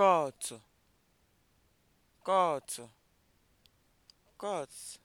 kọọtụ kọọtụ kọọtụ